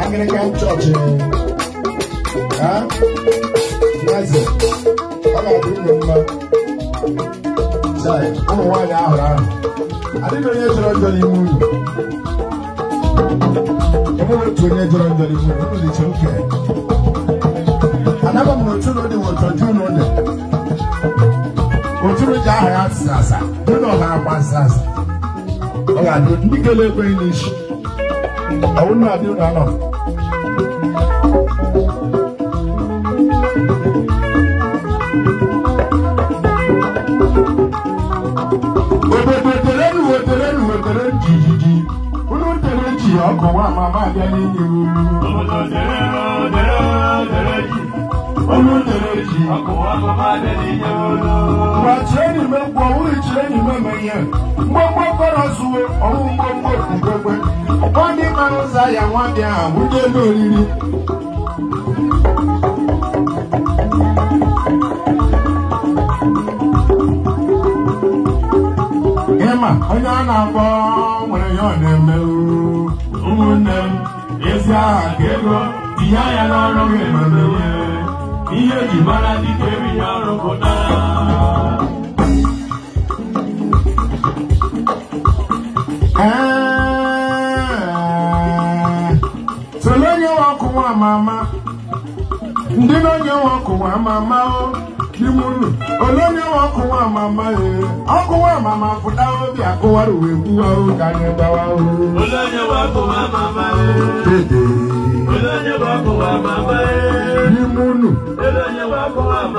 Anglican Church. Eh? Huh? Yes. Ọ ga-adị mma. Sorry, ụmụ nwaanyị ahụrụ ahụ. Adịghị onye jọrọ njọ n'ime unu. Enweghị otu onye jọrọ njọ n'ime unu. Unu dịcha oke. Anaba m n'otu ụlọ dị n'otu ọjọọ ụlọ dị. Otu ụlọ ji aha ya asịsa asa. Ụlọ ha agba asịsa asa. Ọ ga-adị ndị a ekweghị n'isi. I wouldn't have you now. Wètèrè nù wètèrè nù wètèrè jìjìjì. Wúlò wètèrè jì ọkọ̀ wa màmá àbíyá ní ìlú. Wètèrè nù wètèrè wètèrè jì. Wúlò wètèrè wakyerɛni mɛ bɔ wuli kyerɛni mɛ mɛ gbogbo kɔrɔ suwo ɔmu gbogbo gbogbo ɔkɔni kanu sa yɛ wɔn di a wuli loriri. onye ọ na-akpọ nwere ya ọ na-eme ụmụnne m ezi aha ka ego tinye ya n'ọrụ gị ma mee ihe eji mara dike erighị ọrụ pụtara onye nwe ọkụ nwa ama ndị na onye nwe ama ama o n'ime unu ole onye nwe ọkụ nwa ama ama ee ọkụ nwa ama ama akụwara uwe gbuwa o ka anyị gbawa o ole onye nwe ọkụ nwa ama ama ee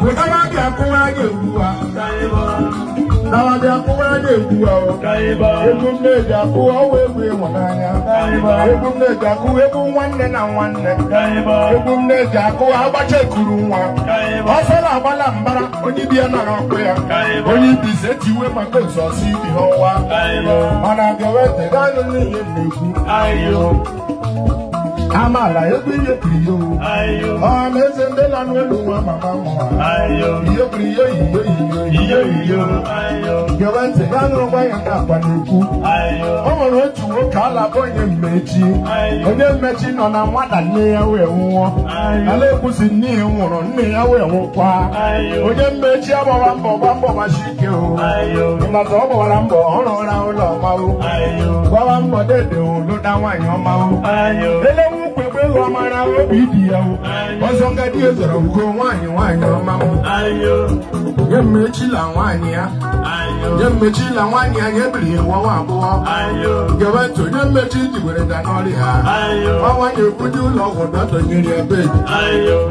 Mutawaje akuwaje ukuwa. Nawaje akuwaje ukuwa o. Egwu mmeji akụwa ọwa egwu ịhụ n'anya. Egwu mmeji akụwa egwu nwanne na nwanne. Egwu mmeji akụwa agbacha ekuru nwa. Ọsọ na-agbala mbara onye ibi ya nara ọkụ ya. Onye ibi ise tiwe maka ụzọsi ibi ha ọwa. Mana ga-ewetara anyị n'ihe mmegbu. Ama amala yobiri ekiriyo ọmọ eze ndị lanụ elu nwa mama mụwa iyokiriyo iyoiyo iyoiyo gebe ntị ga nụrụkwa ayo. nke akwa n'ekwu o nwere otu nwoke alaba onye mmechi onye mmechi nọ na nwata nne ya wee nwụọ ala ekwusi nne ya nwụrụ nne ya wee nwụkwa onye mmechi agbawa mbọ gba mbọ machi ike o ịmata ọ gbawara mbọ ọrụ ụra ụlọ ọmawo gbawa mbọ dede olu na nwaanyị ọmawo ele ụlọ amara obi dị ya ọzọ ngadi ezoro ugo nwaanyị nwaanyị ọma m nye mmechila nwaanyị ya nye mmechila nwaanyị ya nyebiri nwa nwa abụọ gewe ntụ nye mmechi jigwere da n'ọrị ha ọnwa na-ekwuje ụlọ ọgwụ dọtọnyere ebe dị.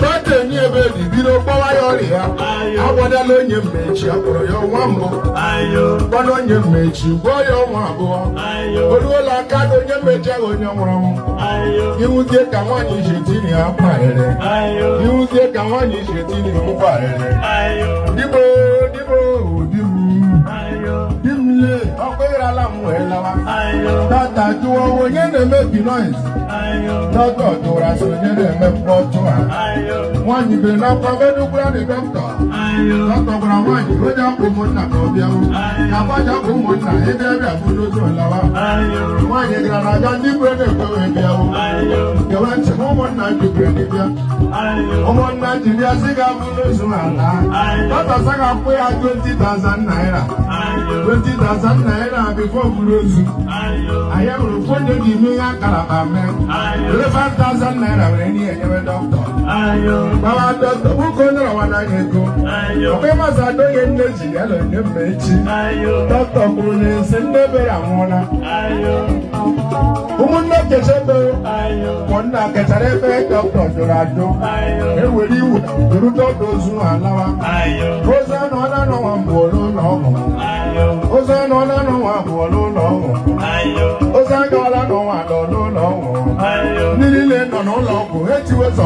dọta enye ebe dị bido kpọwa ya ọrịa agwadala onye mmechi akpọrọ ya ọnwa mbụ gbana onye mmechi gwọọ ya ọnwa abụọ o ruola aka na onye mmechi ahụ onye nwụrụ ọnwụ iwuzie ka nwaanyị ishetini akwa ere iwuzie ka nwaanyị ishetini ụkwa ere dịbo dịbo Tata juwo wo nye ne mebi noise. Dọ́tọ̀ tora so nye ne me pọtọ ha. Wọ́n nyìbìrì náà kọ́ Bẹ́dúgbúrá ni dọ́kítọ̀. Dọ́kítọ̀ gbọ́dọ̀ wọ́n yìí ló jẹ́ kó mo nà kọ́ bí ẹ̀wọ̀. Yàgbọ́ jẹ́ kó mo nà na ẹ̀dẹ́ àfojúsùn ìlọ́wọ́. Wọ́n yìí gbọ́dọ̀ ajá nígbèrè ní ìpéwé bí ẹ̀wọ̀. Yẹ̀wẹ̀ ntì mú mo nà jùbìrì ní bíẹ́. Ọmọ nà jìbí ẹsẹ̀ ká fojúsùn àlá. Dọ́tọ̀ sẹ́ka pé a twenty thousand naira. twenty thousand naira before Guruzu. I am reported in me and Calabame. Eleven thousand naira when any e ever doctor. Baba doctor, who can know what I can go? Okay, must I do get energy? I don't get energy. Doctor Bruni, send me a mona. Umunna kechebe, konna kecharebe doctor Dorado. Eweli wu, durudo dozu alawa. Rosa no na no ambolo no. pụọ n'ụlọ ọgwụ ozi agaala n'ụwa nọ n'ụlọ ọgwụ ndị niile nọ n'ụlọ ọgwụ ha etiwe sọ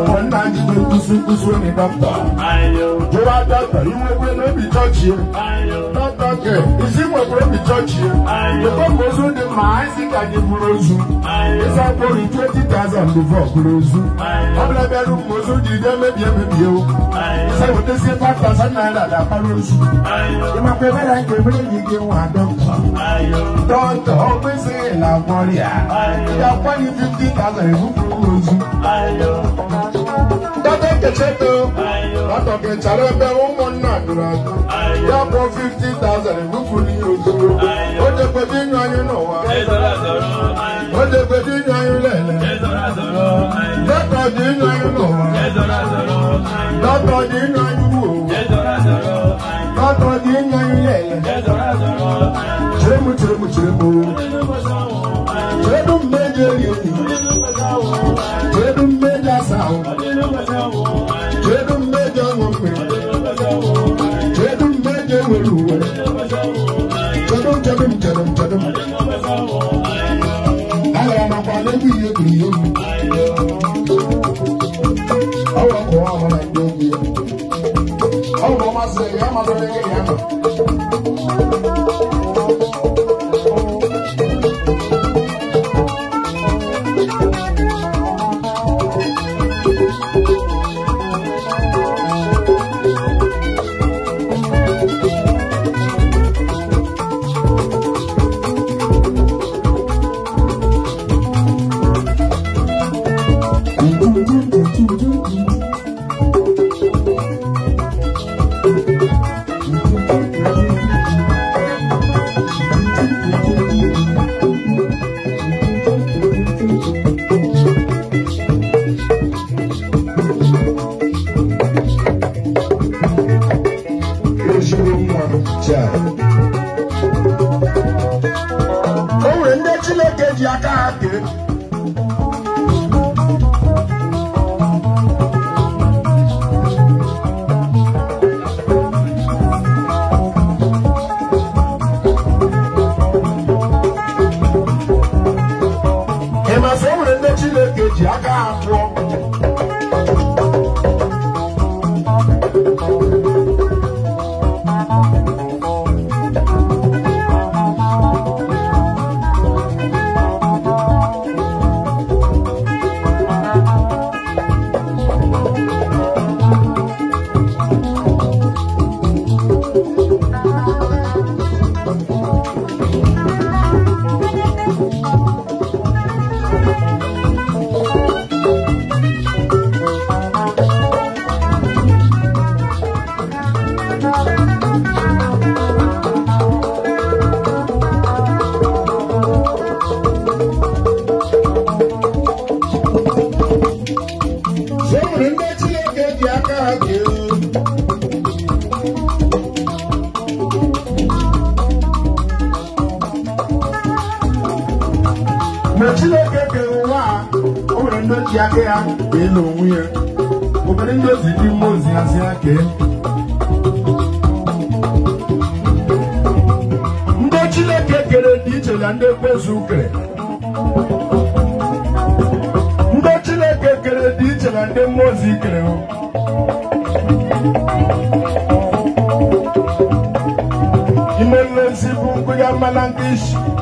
One man is doing kusu kusu in the doctor. You are doctor, you will not be touched here. Not doctor, is he will be touched here. The bomb goes on the Isaac and the Burozu. It's a boy in 20,000 before Burozu. I'm like a room goes on the damn baby. It's a what they say, 5,000 naira that Burozu. You might be better than the baby you give one doctor. Doctor, always say, La Moria. You are 50,000 in Burozu cheto atọkẹtsara ẹbẹ ụmụnna dụrụ atụ ya kpọọ fifty thousand ebuku n'ihe ozugbo o jekwede inyu anyị n'ụwa o jekwede inyu anyị lele dọkọ dị inyu anyị n'ụwa dọkọ dị inyu anyị wuo dọkọ dị inyu anyị lele cheremu cheremu cheremu cheremu mgbe eji eri enyi. I'm gonna go ọwọ I'm gonna nàìjíríà ọwọ ọmọ sẹ ẹ má sọ ẹ gonna. ji aka ya wee na ya obodo ndị ozi ndị mmụọ ozi hazi aka ndị chineke kere dị iche na ndị ekwezu kere ndị chineke kere dị iche na ndị mmụọ ozi kere ime nlezi bụ nkụya mmana ndị isi